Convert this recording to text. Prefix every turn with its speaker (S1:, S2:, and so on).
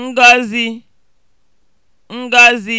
S1: ngọzi ngọzi